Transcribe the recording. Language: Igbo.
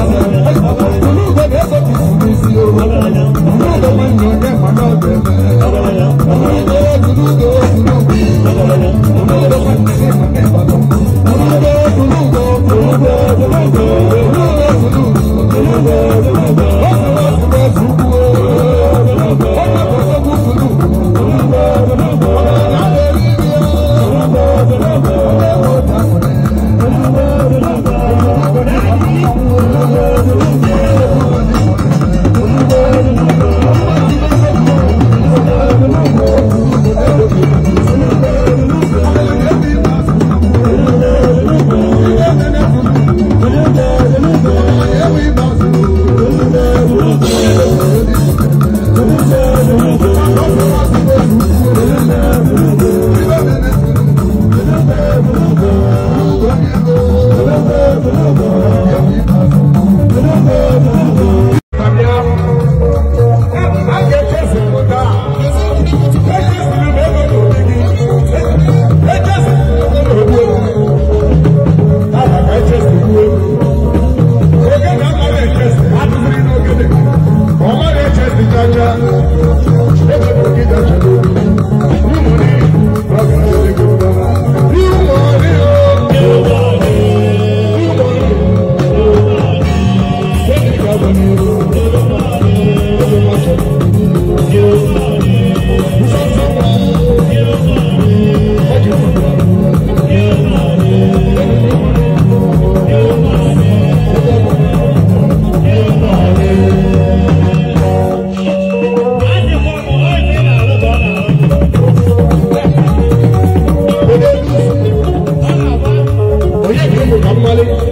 ọmọ ìgbẹ́gbẹ́ kò tì sí mi sí I'm ọmọ ìgbẹ́gbẹ́ kò tì sí mi sí o. Thank you. Money.